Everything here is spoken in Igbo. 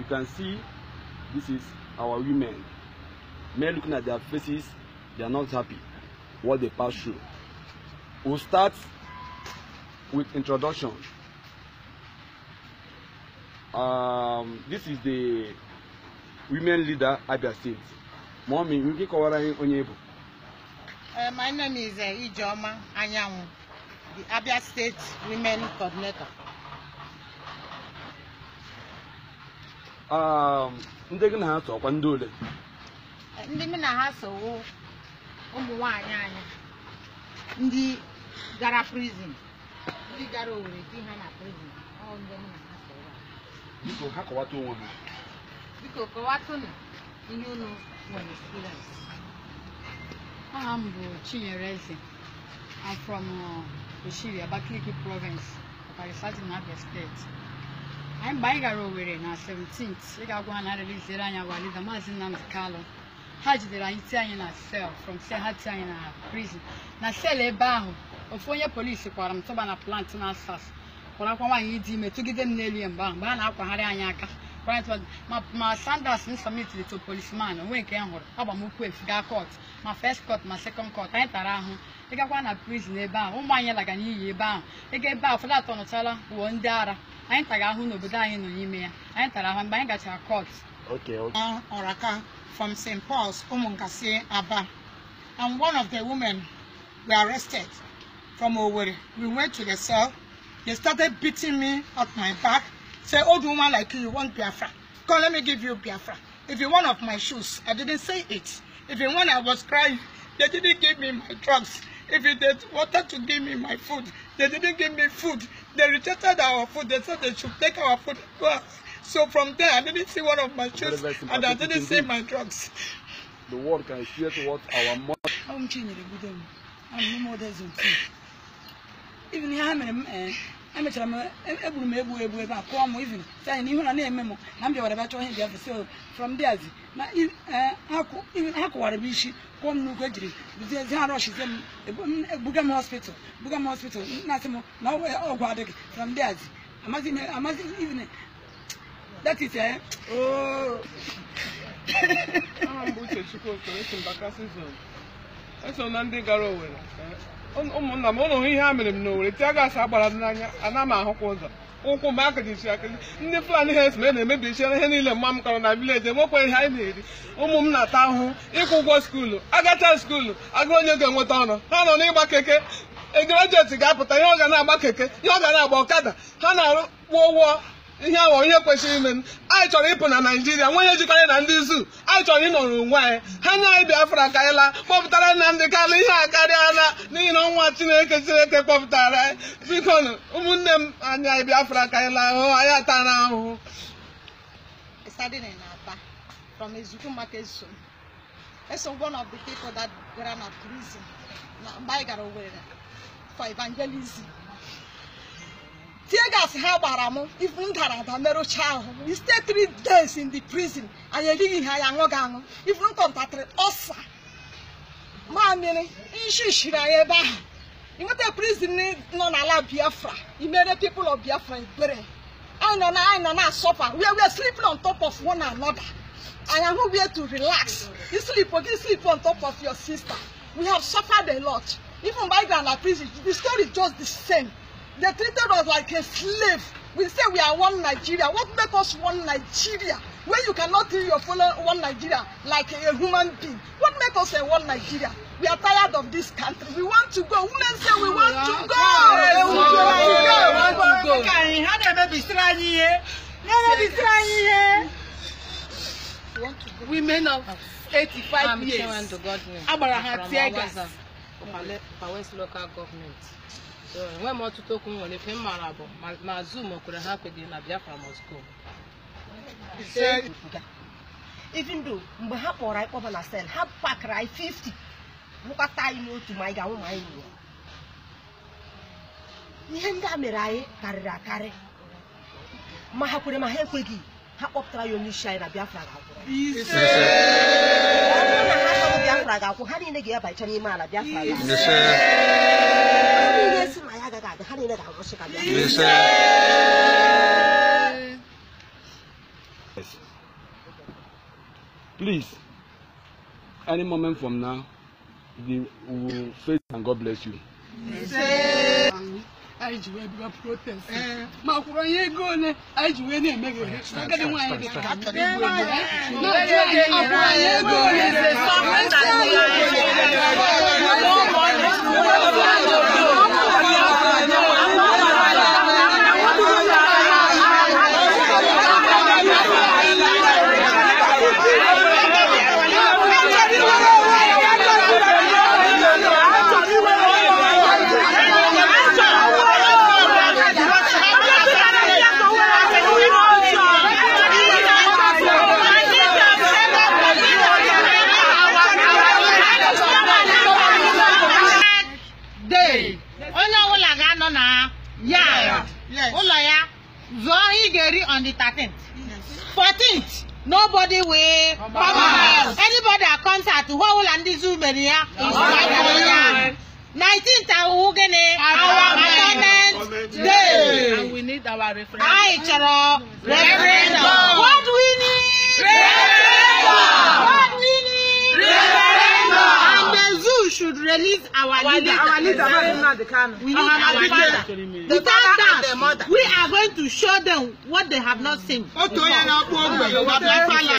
you can see this is our women men looking at their faces they are not happy what they pass through we we'll start with introduction um, this is the women leader abia state mommy nke kọwara anyị onye bụ my name is uh, ijeoma anyanwụ the abia state women coordinator Um, ndị gị na ha sọkwa ndị ole ndị m na ha sowo ụmụ nwanyị anyị ndị gara prison ndị gara owere di ha na prison ndị m na ha sowo biko ha kọwata onwe ha biko kọwatụnụ ihe unu nwere experience aha m bụ Chinyere Eze I'm from uh, Oshiri Abakaliki province Ọkara na Abia steeti anyị mgbe anyị gara Owerri na 17 ị ga-agwa ha na arịliziere anyị awa maazị Nnamdi Kalụ ha jidere anyị tie anyị na sel from sel ha tie anyị na prison na sel ebe ahụ ofu onye polisi kwara m tụba na plant na asas kwarakwa nwaanyị dị ime tụgide m n'elu ya mgbe ahụ mgbe a na-akwagharị anyị aka ma Sanders m submitiri to policeman onwe nke m hụrụ agba m ụkwụ efu gaa court ma first court ma second kọt anyị tara ahụ ị gakwa na prizin ebe ahụ ụmụ anyị lagara n'iyi ebe ahụ ịga ebe ahụ ụfọdụ atọnụchala wụọ ndị ara anyị tara ahụ n'obodo anyị nọ n'ime ya anyị tara ahụ mgbe anyị gachara kọt ọraka from st paul's ụmụnkasi aba and one of the women we arrested from Owerri. We went to the cell. They started beating me at my back. Say, old woman like you, you want Biafra. Come, let me give you Biafra. If you want of my shoes, I didn't say it. If you want, I was crying. They didn't give me my drugs. If they wanted to give me my food, they didn't give me food. They rejected our food. They said they should take our food. So from there, I didn't see one of my shoes and I didn't see my drugs. The world can hear what our mother. I'm changing the good I'm no more than Even here, I'm in eh, emechara m egburu m egbu egbu ebe a kụọ m ivin sanyị n'ihu na na-eme m na m bịawara bịachọ ihe biafra so from there na e, ha kụwara m isi kụọ m n'ugwu ejiri buzie ezi ha rọshizie m e, buga m hospital buga m hospital na-asị m na ọgwụ adịghị from there amazi e, ivin that is eh. Oh. eso na ndị gara Owerri eh, ụmụnna m ụlọ ihe ha mere m n'Owerri tia gaasị agbara dị n'anya ana m ahụkwa ụzọ ụkwụ m akajisi akịji ndị Fulani ha esome na-emebichara ihe niile mma m kọrọ na vileji enwekwa ihe anyị na-eri ụmụ m na-ata ahụhụ ịkwụ ụgwọ skuulu agacha skuulu aga onye ga-enweta ọnụ ha nọ n'ịgba keke egrejeti ga-apụta ihe ọ ga na-agba keke ihe ọ ga na-agba ọkada ha na kpụọ ụgwọ ihe awa onye kwesịrị ime anyị chọrọ ịpụ na naijiria nwe ihe jikọrọ na ndị izu anyị chọrọ ịnọrọ onwe anyị ha nye anyị biafra karịla kpọpụtara na ndị karịa ihe a karịala n'ihi na ọnwa chineke chineke kpọpụtara anyị biko ụmụnne m anyị anyị biafra karịla ahụhụ anyị atara ahụhụ for evangelism. tie gas ha gbara m ifu m dara ada merụcha ahụ we stay three days in the prison anyị erighị ha ya aṅụghị aṅụ ifu m kọntaktịrị ọsa mamịrị nshishiri anyị ebe ahụ ịnweta prison nọ eh, n'ala biafra imere people of biafra ebere anyị nọ na anyị nọ na asọpa we were sleeping on top of one another anyị ahụ where to relax you sleep oge sleep on top of your sister we have suffered a lot even by grand prison the story is just the same They treated us like a slave. We say we are one Nigeria. What make us one Nigeria? When you cannot treat your fellow one Nigeria like a human being. What make us a one Nigeria? We are tired of this country. We want to go. Women say we want to go. We want to go. We want to go. Women of 85 ah, years. Agbara ha tear gas. Pawes local government. enweghị m ọtụtụ okwu m nwere ife m maara bụ ma zum kwere ha kweghị na Biafra must go even though mgbe ha kpọrọ anyị kpọba na sel ha pakara anyị 50 bụkọta anyị n'otu ma anyị ga-anwụ ma anyị nwụọ ihe ndị a mere anyị karịrị akarị ma ha kwere ma ha ekweghị ha kpọpụtara ya onye isi anyị na Biafra ga-akwụ ha niile ga-abachara n'ime ala Biafra Please. any moment from now, we will face and God bless you. anyị ji wee bịa protest ma kwụrụ onye ego ole anyị ji wee na-eme gị ohe agadi nwaanyị dị ka akwụrụ anyị ego yard ụlọ ya oh, zụọ ihe ị ga-eri on the 13th 14th nobody will come out anybody at concert ụwa ụlọ ndị zoo mere ya ya 19th awụ gịnị our attendant day and we need our referendum anyị chọrọ referendum what we need referendum should release our, our leader. Our leader, exactly. Nnamdi We need our, our leader. leader. Without that, we are going to show them what they have not seen. Ó